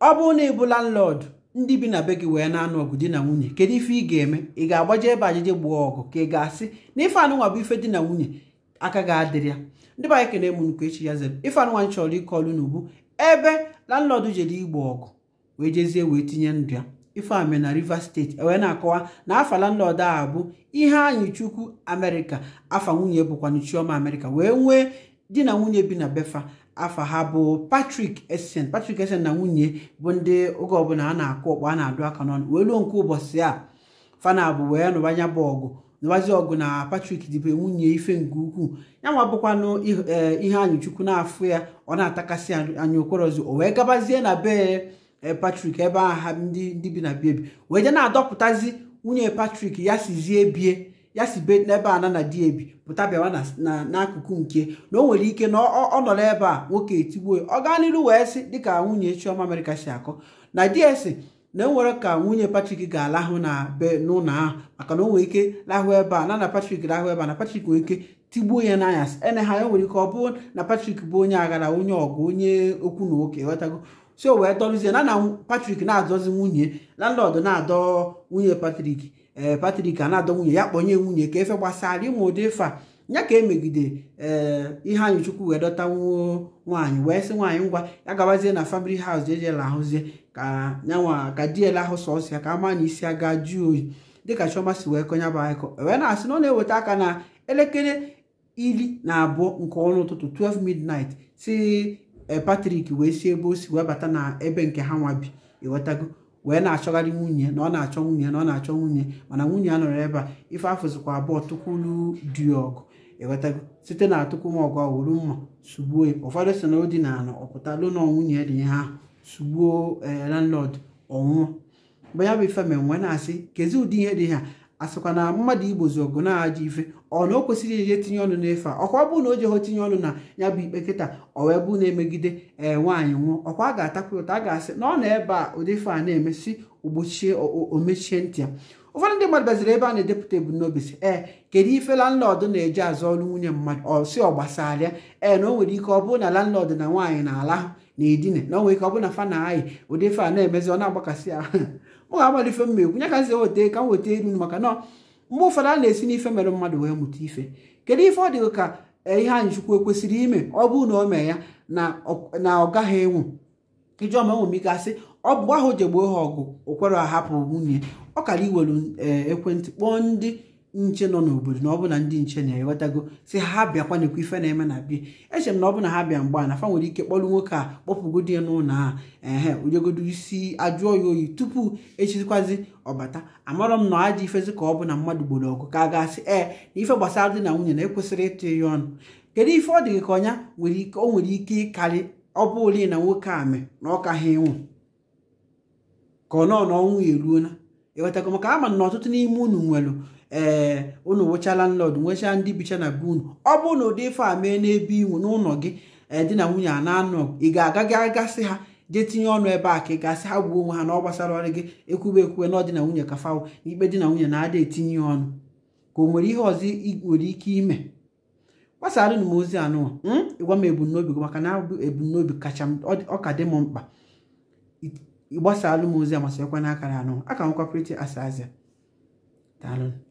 ọ bụrụ na bụ landlord ndị bi na be gị wee na-anụ ọgụ di na nwunye kedu ife ị ga-eme ị ga-agbaje ebe ajije gbuo ọgụ ka ị ga-asị na ife anụnwa bụ ife di na nwunye aka ga-adịrị ya ndị be anyị kene mụnukwu echi ya zere ife anụnwa chọrọ ịkọlụ n'ubu ebe landlord jere igbo ọgụ wee jezie wee tinye ndụ ya ifeame na rivers steeti wee na-akọwa na afa landlord a bụ ihe anyị chukwu amerịka afa nwunye bụkwanụ chioma amerịka wee nwee di na nwunye bi na befa afa ha bụ Patrick Essien Patrick Essien na nwunye bụ ndị oge ọbụla a na-akụ ọkpọ a na-adụ aka n'ọnụ wee luo nke ụbọchị a fana bụ wee nụbanya bụ ọgụ nụbazi ọgụ na Patrick dịbe nwunye ife nke ukwuu ya nwa bụkwanụ e, ihe anyụchukwu na-afụ ya ọ na-atakasị anya okorozi o wee gabazie na be e, Patrick ebe aha ndị bi na biebi wee je na-adọpụtazi nwunye Patrick ya sizie bie ya si be n'ebe a na di ebi pụta bịawa n'akụkụ nke na o nwere ike na ọ nọ n'ebe a nwoke etigbuo ọ gaa n'iru wee sị dịka nwunye Chioma amerika si akọ na ds na enwere ka nwunye Patrick ga-alahụ na be n'ụlọ ahụ maka na o nwere ike lahụ ebe a na na Patrick lahụ ebe a na Patrick nwere ike tigbuo ya n'anyasị ene ha ya nwere ike ọ bụrụ na Patrick bụ onye aghara onye ọgụ onye okwu na oke ghọtago si o wee dọrụzie na na patrik na-adọzi nwunye landlọd na-adọ nwunye patrik ee eh, patrik a na-adọ nwunye ya kpọnye nwunye ka efe gbasara ịmụ ụdị ịfa nya ka emegide ee eh, ihe anyị chukwu wee dọta nwaanyị wee sị nwaanyị ngwa ya gabazie na famili haus ejela ahụzie ka nyanwa ka diela ahụ sọsọ ya ka ama na isi aga jụọ oyi dịka chioma si wee konye bụ anyịkọ wee na-asị na ọ na-eweta aka na elekere ili na abụọ nke ọnụ ụtụtụ 12 midnight si Eh, Patrick wee si ebe o si wee bata na ebe nke ha nwa bi ịghọtago wee na-achọgharị nwunye na ọ na-achọ nwunye na ọ na-achọ nwunye mana nwunye a nọrọ ebe a ife afụzikwa abụọ tukwulu dị ọgụ ịghọtago site na atụkwum ọgụ ọwụrụ mma sugbuo ya ụfọdụ si na o dị na ala ọpụtalụ na nwunye dị ihe ahụ sugbuo eh, landlord ọnwụọ mgbe bụ ife mere na-asị kezi ụdị ihe dị ha asịkwa na mmadụ igbozi ọgụ na-aja ife ọ na o kwesịrị eje tinye ọnụ n'efe a ọkwa bụ na o jeho tinye ọnụ na ya bụ ikpe nkịta ọ na-emegide ee nwaanyị nwụọ ọkwa a ga-atakwa ụta a ga-asị na ọ na ebe a ụdị ife a na-emesi ogbochie omechie ntị ya ụfọdụ ndị mmadụ baziri ebe a na-edepụta ebumnobi si ee kedu ife landlọdụ na-eji azụ ọrụ nwunye mmadụ ọ si ọ gbasara ee na o nwere ike ọ bụrụ na landlọdụ na nwaanyị na-ala na edine na o nwere ike ọ bụ na fa na-ayị ụdị a na-emezi ọ na-agbakasị ya mụ ga-agbado mma ekwu nye ka m weta ka m weta elu maka na mgbe ụfọdụ a na-esi n'ife mere mmadụ wee mụta ife kedu ife ọ dị ka e, ihe a kwesịrị ekwesịrị ime ọ bụrụ na o mee ya na ọ gaghị enwu ijeọma enwemigasị ọ bụ ahụ jegboo ha ọgụ o ahapụ nwunye ọ kara iwere ekwentị kpọọ ndị nche nọ n'obodo na ọ bụ na ndị nche na ewetago si ha bịakwa nekwa ife na-eme na bie echere m na ọ bụ na ha bịa a na fa nwere ike kpọrụ nwoke a kpọpụgodi ya n'ụlọ a ehe ujegodo isi ajụọ ya oyi tupu echizikwazi ọbata amarọ m na ọ ajọ ifezi ka ọ bụ na mmadụ gboro ọgụ ka a asị ee na ife gbasara dị na nwunye na ekwesịrị ịtụ ya ọnụ kedu ife ọ dị ka ọnya o nwere ike ịkarị ọ bụ na nwoke a mee na ọka ha ịnwụ ka ọ nọ na ọnwụ ya eruola maka ama na ọtụtụ n'ime unu nwere ee eh, unu wụchala landlord nwechaa ndị bicha na be unu ọ bụrụ na ụdị ife a mee n'ebe inwu n'ụlọ gị ee eh, na nwunye a na-anọ ị ga-agaghị agasị ha jee tinye ọnụ ebe a ka ị gasị ha gwuo onwe ha na ọ gbasara ọrụ gị ekwube ekwube na ọdị na nwunye kafawo ikpe di na nwunye na-ada etinye ọnụ ka o nwere ihe ọzọ nwere ike ime gbasara m ozi anụ hmm? ịgwa m ebumnobi gị maka na ebumnobi kacha ọ dị m mkpa ịgbasara m ozi amasịkwa n'akara anụ aka m Pretty Azazia daalụ